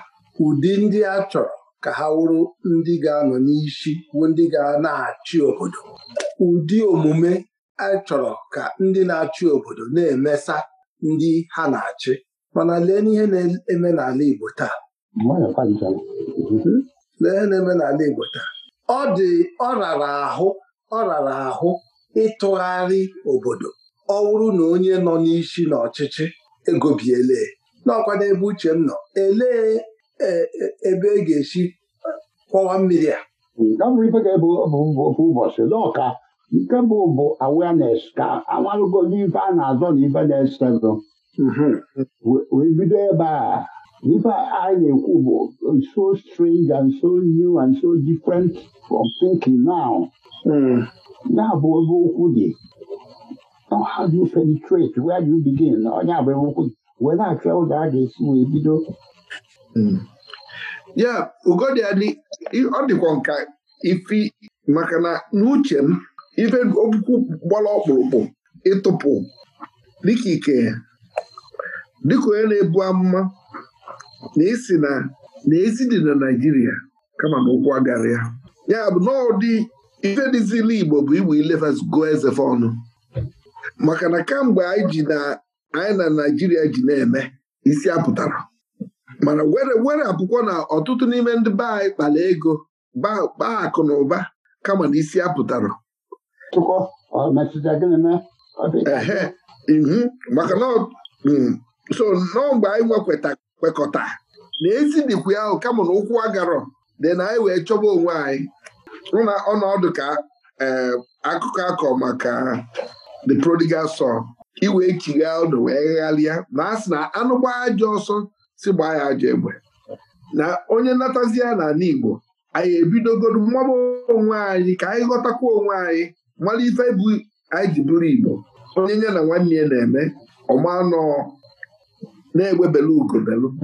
S2: ụdị ndị a chọrọ ka ha wụrụ ndị ga-anọ n'isi bụ ndị ga na-achị obodo ụdị omume a chọrọ ka ndị na-achị obodo na-emesa ndị ha na-achị mana lee n'ihe na-eme n'ala Igbo taa lee na-emenala Igbo taa ọ dị ọ rara ahụ ọ rara ahụ ịtụgharị obodo ọ wụrụ na onye nọ n'isi na n'ọchịchị egobiele n'ọkwa n'ebe uche m nọ elee e, e, ebe e ga-esi kwọwa mmiri a ụbọchị
S3: n'ọka nke bụ bụ awareness ka amalụgo n'ife a na-azọ na ife na esedo mhm. wee bido ebe a Ife a na-ekwu bụ so strange and so new and so different from thinking now. Ya bụ ebe okwu dị. how do you penetrate? Where do you begin? Onye abụ ebe okwu dị. Wee na-achọ ụzọ a ga-esi wee bido.
S5: Ya ugodi adị ọ dịkwa nka ifi maka na n'uche m ife okwu gbara ọkpụrụkpụ ịtụpụ dịka ike dịka onye na-ebu amụma na esi na na ezi dị na Naịjirịa kama na ụkwụ agara ya ya bụ n'ọdị ife ife ziri Igbo bụ igbo ilefas go ezefe ọnụ maka na kamgbe anyị na Naịjirịa ji na-eme isi apụtara mana were were apụkwọ na ọtụtụ n'ime ndị be anyị kpara ego baa akụ na ụba kama na isi apụtara ihu maka mm, so n'ọgba anyị nwekweta kwekọta na ezidikwu ahụ kama na ụkwụ agarọ dị na anyị wee chọba onwe anyị hụ na ọnọdụ ka eh, akụkọ akọ maka the prodigal son iwe chigha ọdụ wee ghalịa ma a sị na anụ gbaa ajọ ọsọ si gbaa ya ajọ egbe na onye natazia ya n'ala Igbo anyị ebidogoro mmaba onwe anyị ka anyị ghọtakwa onwe anyị mara ife bụ anyị ji bụrụ Igbo onye nye na nwanne ya na-eme ọmanọọ na-egbe belu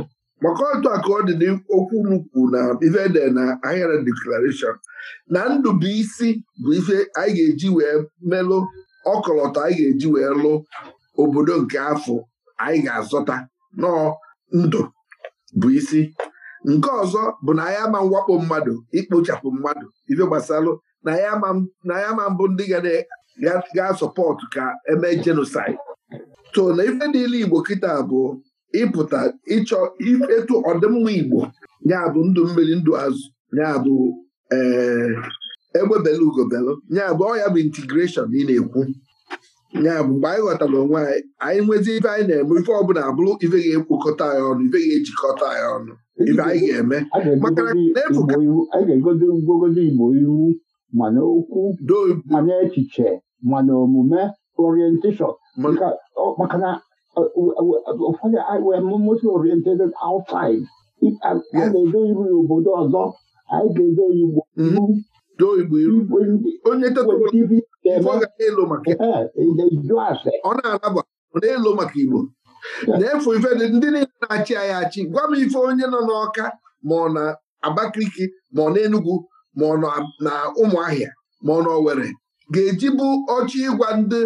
S5: maka otu a ka ọ dị n'okwu n'ukwu na ife na ahịara deklarashọn na ndụ bụ isi bụ ife anyị ga-eji wee melụ ọkọlọtọ anyị ga-eji wee lụ obodo nke afọ anyị ga-azọta nọọ ndụ bụ isi nke ọzọ bụ na anyị ama mwakpo mmadụ ikpochapụ mmadụ ife gbasalụ na anyị ama mbụ ndị ga-asọpọtụ ka eme jenosaid so na ife niile Igbo kịta abụọ ịpụta ịchọ etu ọdịmma Igbo bụ ndụ mmiri ndụ azụ bụ ee eh, egbebela ugobelu nyabụ ọ ya bụ intigreshọn ị na-ekwu bụ mgbe anyị ghọtara onwe anyị anyị nwezi ife anyị na-eme ife ọbụla abụrụ ife ga ekwokọta ya ọnụ ife ga-ejikọta ya ọnụ ife anyị ga-eme maka anyị ga-egozi Igbo iru mana okwu
S3: mana echiche mana omume orientation maka na ụfọdụ wemosi oriented outside ga-edo iru mm-hmm.
S5: ya obodo ọzọ anyị ga-edo Igbo ugbo onye ọ na-alaba ọ na-elo maka Igbo na-efu ife ndị niile na-achị anyị achị gwa m ife onye nọ n'Ọka ma ọ na Abakaliki ma ọ na Enugwu ma ọ na Ụmụahịa ma ọ na Owerri ga-eji bụ ọchị ịgwa ndị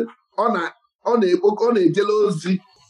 S5: ọ na-ekpokọ ọ na-ejele ozi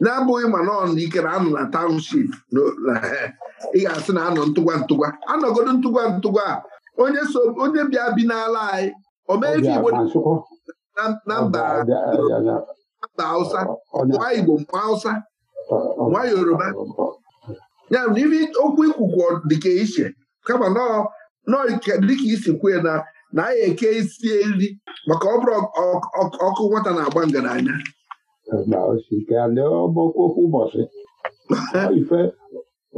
S5: na-abụghị ma na ike na anọ na township ị ga-asị na anọ ntụgwa ntụgwa anọgodo ntụgwa ntụgwa a onye bịa bi n'ala anyị omeife Igbo na mba Hausa nwa Igbo nwa Hausa nwa Yoruba ya n'ime okwu ikwukwu dịka iche kama nọọ dịka isi kwue na na anyị eke isi nri maka ọ bụrụ ọkụ nwata na-agba ngaranya
S3: na osike ndị ọgbakọ okwu ụbọchị ife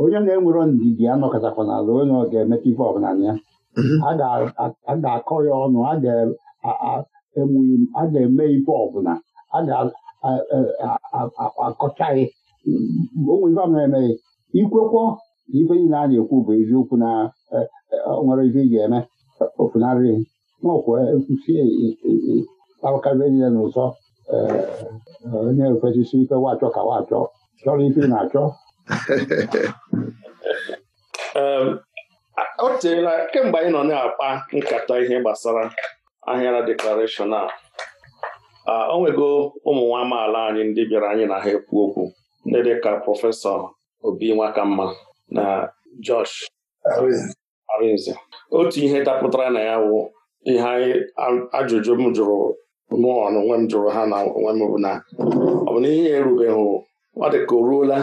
S3: onye na-enwero ndidi anọkọtakwa n'ala onye ọ ga-emeta ife ọbụla ya a ga-akọ ya ọnụ a ga-eme ife ọbụla a ga-akọchaghị onwe ife ọbụla emeghị ikwekwo na ife niile a na-ekwu bụ eziokwu na nwere ife ị ga-eme ofunarịghị n'ọkwa kwusi tawakarịa niile n'ụzọ onye ofesi ike wachọ ka wachọ chọrọ ike na-achọ
S4: o teela kemgbe anyị nọ na-akpa nkata ihe gbasara ahịara deklarashọn a o nwego ụmụ nwa amaala anyị ndị bịara anyị na ha ekwu okwu ndị dịka prọfesọ obi nwakamma na Josh Arinze otu ihe dapụtara na ya wụ ihe ajụjụ m jụrụ mụọ onwe m jụrụ ha na onwe m na ọ bụ na ihe erubeghị ọ dị ka o ruola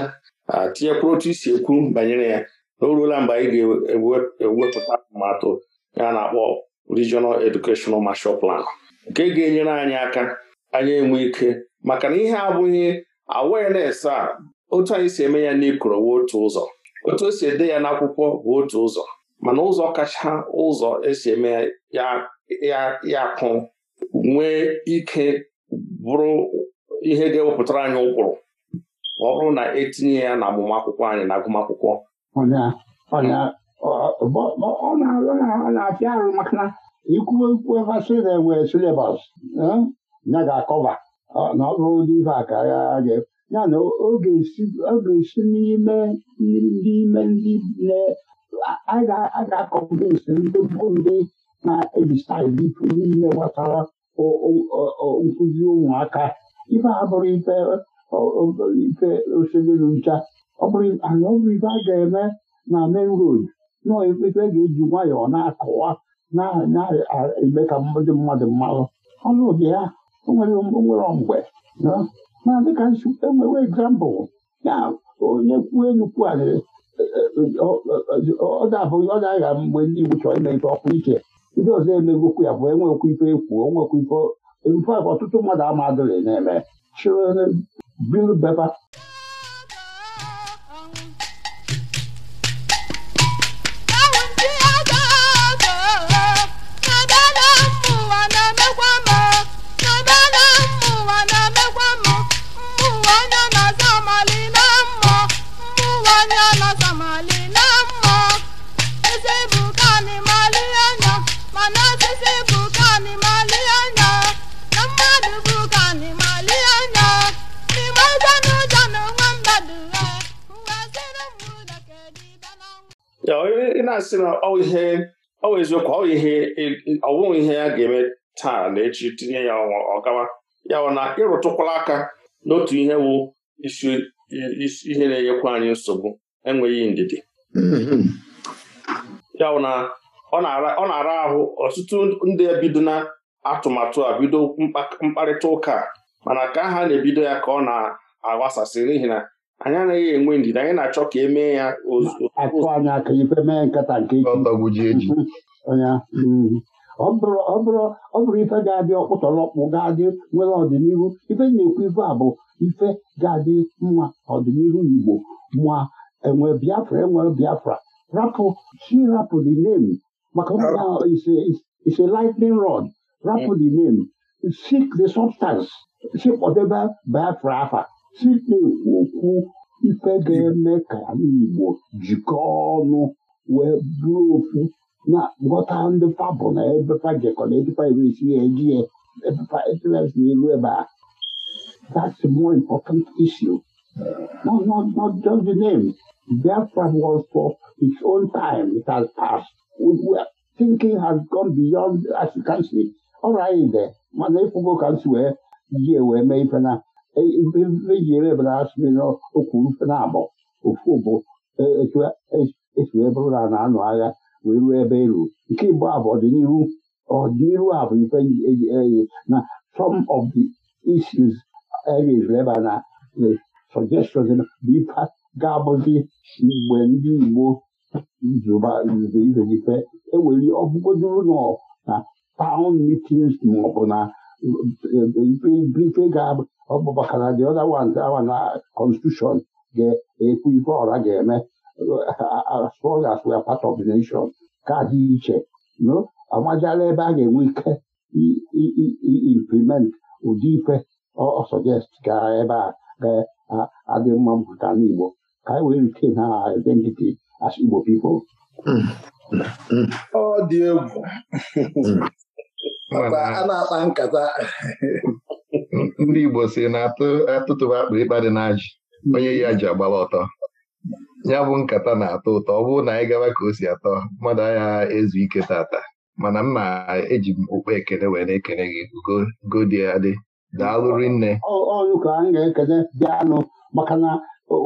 S4: tinyekwuru otu isi ekwu banyere ya na o ruola mgbe anyị ga-ewepụta atụmatụ ya na-akpọ Regional Educational marshal Plan nke ga-enyere anyị aka anyị enwe ike maka na ihe abụghị awareness a otu anyị si eme ya n'ikoro bụ otu ụzọ otu esi ede ya n'akwụkwọ bụ otu ụzọ mana ụzọ kacha ụzọ esi eme ya ya akụ nwee ike bụrụ ihe ga-ewepụtara anyị ụkpụrụ ma ọ bụrụ na etinye ya na agbamakwụkwọ anyị na agụmakwụkwọ
S3: ọ na-apịa arụ maka na ikwu okwu evasịna enwere silebas ya ga-akọva na ọ bụrụ ndị ibe a ka ya ya na ọ ga-esi n'ime ndị ime ndị a ga-akọmpensi ndị bụ ndị na ebisa staịl n'ime n'ihe nkụzi ụmụaka ife a bụrụ ife osebelu ncha ọ bụrụ anyị ọ bụrụ ife a ga-eme na main road nọọ ife ga-eji nwayọọ na-akọwa na-eme ka ndị mmadụ mmalụ ọnụ ụdị ya nwere mgbe na dịka enwere egzampụl ya onye kwuo enukwu anyị e, e, e, ọ ga-abụghị ọ ga-agha mgbe ndị igbo chọrọ ime ife ọkụ iche ndị ọzọ emegokwu ya bụ enwekwu ife ekwu onwekwu ife ife ọtụtụ mmadụ ama adịghị na-eme children bill bepa
S4: ị na-asị na ọ eziokwu ọ bụghị ihe ya ga-eme taa na echi tinye ya ọgawa ya na ịrụtụkwala aka n'otu ihe wụ ihe na-enyekwa anyị nsogbu enweghị ndidi ya na ọ na-ara ahụ ọtụtụ ndị ebido na atụmatụ a bido mkparịta ụka mana ka ha na-ebido ya ka ọ na-agbasasị n'ihi na anyị anaghị enwe ndidi anyị na-achọ ka e mee ya
S3: akụ anya aka ife mee nkata nke ike <laughs> mm. ọ bụrụ ife ga-adị ọkpụtọrọkpụ ga-adị nwere ọdịnihu ife na-ekwu ife a bụ ife ga-adị mma ọdịnihu Igbo ma enwe Biafra enwe Biafra rapụ chi rapụ the name maka ise lightning rod rapụ the name seek the substance chekpọdebe Biafra afa Chineke okwu ife ga-eme ka Igbo jikọọ ọnụ wee bụrụ ofu na ghọta ndị fa na ebefa jekọ na ebefa eresi ya eji ya ebefa ebe a. That's a more important issue. Not, not, not just the name. Biafra was for its own time. It has passed. We, thinking has gone beyond, as you can see. Ọ raghị mana ịfụgo ka m si wee yie wee mee ife na mejiri ebere asịrị n'okwuru na-abọ ofu bụ esi wee bụrụ na na-anụ agha wee ruo ebe eru nke igbo abụ ọdịnihu ọdịnihu a bụ ife eyi na some of the issues areas leba na suggestions bụ ife ga-abụzi mgbe ndị igbo nzube ife ewere ọbụgodoro nọ na town e, meetings maọbụ na ife ga-abụ ọ bụ maka na dị ọda wanta awa na constitution ga-ekwu e ife ọra ga-eme far as we are part of the nation kaadị iche no amajala ebe a ga-enwe ike implement ụdị ife ọ sọjest gara ebe a ga-adị mma mpụta n'Igbo ka anyị e wee retain ha identity as Igbo people
S2: ọ dị egwu mm. a na-akpa nkata
S1: ndị Igbo si na atụtụba akpa ịkpa dị n'ajị onye ya ji agbaba ọtọ ya bụ nkata na-atọ ụtọ ọ bụrụ na anyị gaba ka o si atọ mmadụ agha ezu ike tata mana m na-eji m okpu ekele wee na-ekele gị go dị adị daalụrị nne
S3: ọyụka anyị ga-ekele bịanụ maka na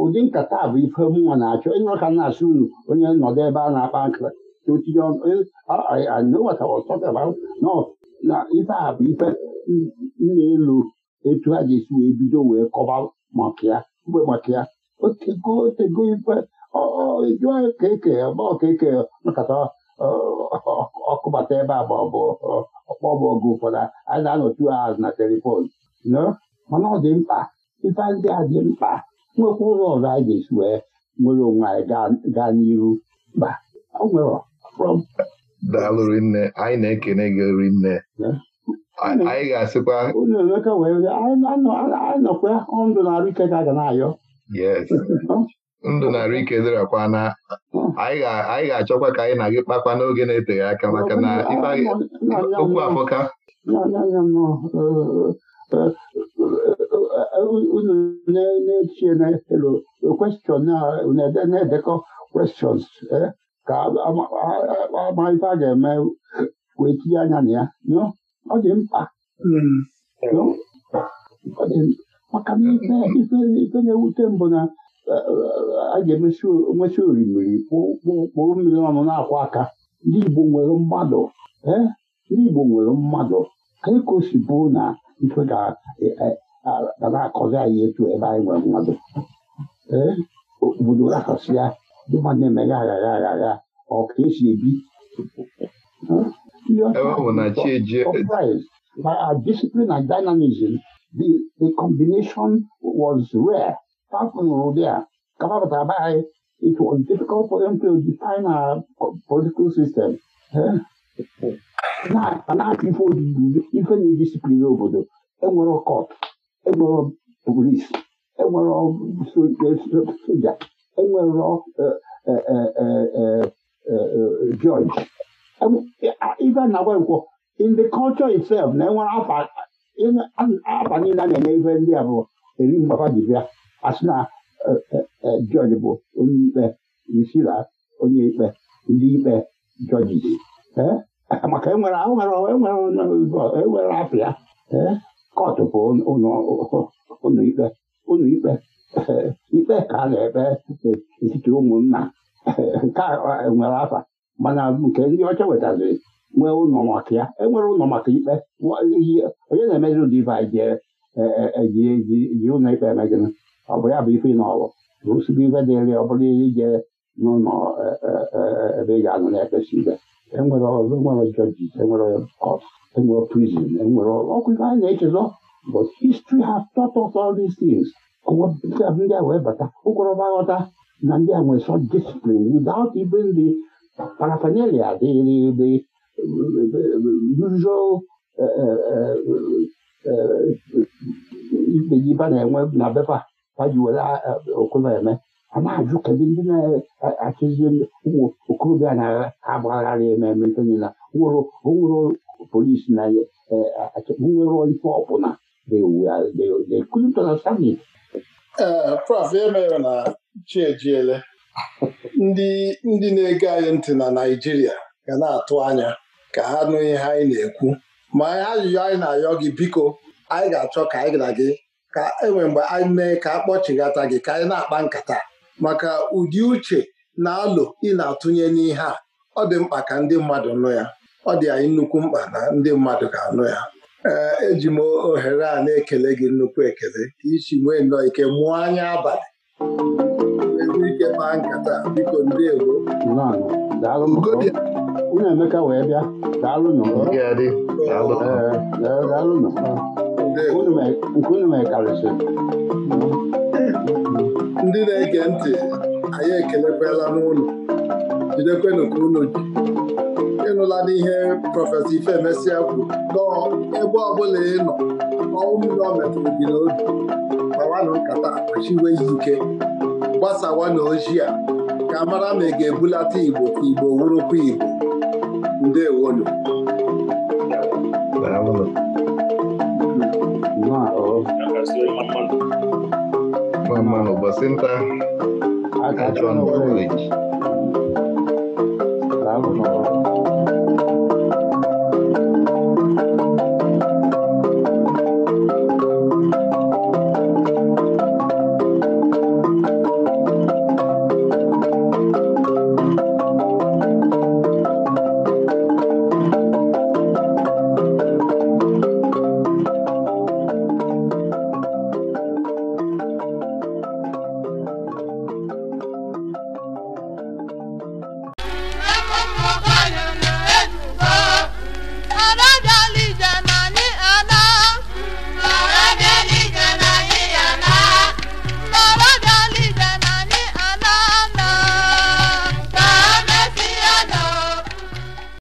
S3: ụdị nkata bụ ife mụnwa na-achọ ịnụrụ ka na-asị unu onye nọdụ ebe a na-akpa nkata e, na ife a bụ ife nna elu etu ha ga-esi wee bido wee kọba maka ya mgbe maka ya otego otego ife eju ka eke ma ọka eke nakọta ọkụbata ebe a ma ọ bụ ọkpọ bụ ọgụ ụfọdụ a na-anọtu azụ na telifon mana ọ dị mkpa ife ndị a dị mkpa nwekwa ụlọ ọzọ a
S1: ga-esi wee nwere onwe anyị gaa n'iru mba ọ nwere daalụ rinne anyị na-ekene gị rinne anyị ga-asịkwa unu emeka wee anọkwa ndụ na-arụ ike ka a ga na-ayọ yes ndụ na-arụ ike dịrakwa na anyị ga-achọkwa ka anyị na gị kpakwa n'oge na-eteghị aka maka na okwu afọka
S3: unu na-echie na-elo kwestion na-edekọ questions eh, ka ama ife a ga-eme wee tinye anya na ya ọ dị mkpa maka na ife na-ewute mbụ na a ga-emesi nwesị orimiri kpụrụ mmiri ọnụ na-akwụ aka ndị Igbo nwere mmadụ ndị Igbo nwere mmadụ anyị ka o si bụ na ife ga na-akọzi anyị etu ebe anyị nwere mmadụ obodo raasịa ndị mmadụ na-emeghe aghara aghara ọ ka esi ebi ebe ọ na by our discipline and dynamism the the combination was rare a kapapụtara be it was difficult for them to define our political system na ife na-edisipline obodo enwere kọt enwere polis enwere soja enwere judge ife nakwa nkwo in kọlchọ culture itself na enwere afa niile a na-enye ife ndị a bụ eri mgbapa dibịa asị na jọji uh, uh, uh, bụ onye ikpe risila onye ikpe ndị ikpe jọji eh? maka enwere enwere afịa kọtụ bụ ụlọ ikpe eh, ikpe ka a na-ekpe eh, etiti ụmụnna nke nwere afa mana nke ndị ọcha wetaziri nwee ụlọ maka ya enwere ụlọ maka ikpe onye na-emezi ụdị ibe anyị e, e, e, ji ji ụlọ ikpe emegịnị ọ bụ ya bụ ife na ọrụ rụsigo ife dịrị ọ bụrụ ihe ije n'ụlọ ebe ị ga-anụ na-ekpesi ibe enwere ọzọ enwere jọji enwere kọt enwere prizin enwere ọkụ ife anyị na-echezọ but history has taught us all these things ndị a wee bata ụgwọrọba ghọta na ndị a nwere sọ discipline without even the parafernalia, the, the, the usual e, e, e, ikpejiba na-enwe na befa paji were eme a na-ajụ kedu ndị na-achụzi ụmụ okorobịa na-agbagharị ememe ntonyela onwere polisi na nwere ife ọbụla they couldn't understand it.
S5: Prof, e mere
S2: na chi ejiele ndị ndị na-ege anyị ntị na Naịjirịa ga na-atụ anya ka ha nụ ihe anyị na-ekwu ma ajụjụ anyị na-ayọ gị biko anyị ga-achọ ka anyị na gị ka enwe mgbe anyị mee ka a kpọchighata gị ka anyị na-akpa nkata maka ụdị uche na alụ ị na-atụnye n'ihe a ọ dị mkpa ka ndị mmadụ nụ ya ọ dị anyị nnukwu mkpa na ndị mmadụ ga-anụ ya ee eji m ohere a na-ekele gị nnukwu ekele ka isi nwee nnọọ ike mụọ anya abalị kpaa nkata biko ndewo onye Emeka wee bịa daalụnụ nke unu mekarịsịrị ndị na-ege
S5: ntị anyị ekelekwala n'ụlọ jidekwenụ ka unu ji
S1: ịnụla n'ihe
S5: prọfesọ Ifemesịa kwuru nọọ ebe ọbụla ị nọ ọnwụ mmiri ọ metụrụ gị n'obi gbawanụ nkata akpachiwe ike
S2: gbasawa na ojii a ka mara ma ị ga-ebulata Igbo ka Igbo wurukwa Igbo
S1: ndewonu ụbọchị nta